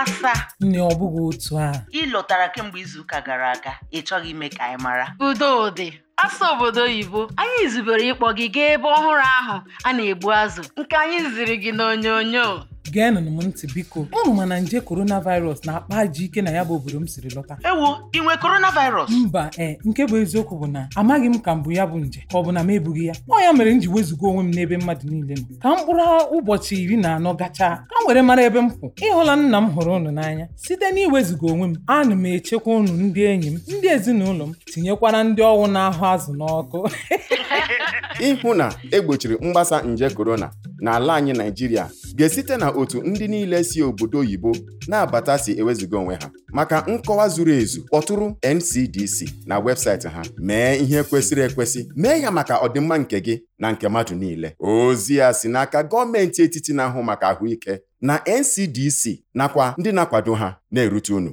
asa. nne ọ bụghị otu ahụ ị lọtara kemgbe izuụka gara aga ị chọghị ime ka anyị mara udo dị asa obodo oyibo anyị zubere ịkpọ gị gaa ebe ọhụrụ ahụ a na-egbu azụ nke anyị ziri gị onyonyo. geenụnụ m ntị biko unu ma na nje coronavirus na-akpa ajọ ike na ya bụ obodo m siri lọta ewo ị nwe coronavirus mba ee nke bụ eziokwu bụ na amaghị m ka mbụ ya bụ nje ka ọ bụ na m ebughị ya ọ ya mere m ji wezuga onwe m n'ebe mmadụ niile nọ ka mkpụrụ ụbọchị iri na anọ gachaa ka m were mara ebe m kwụ ịhụla nna m hụrụ ụnụ n'anya site na iwezuga onwe m ana m echekwa ụnụ ndị enyi m ndị ezinụlọ m tinyekwara ndị ọnwụ na-ahụ azụ n'ọkụ ịhụ na egbochiri mgbasa nje korona n'ala anyị naijiria ga-esite na otu ndị niile si obodo oyibo na-abata si ewezuga onwe ha maka nkọwa zuru ezu kpọtụrụ NCDC na webụsaịtị ha mee ihe kwesịrị ekwesị mee ya maka ọdịmma nke gị na nke mmadụ niile ozi ya si n'aka gọọmenti etiti na-ahụ maka ahụike na NCDC nakwa ndị na-akwado ha na-erute unu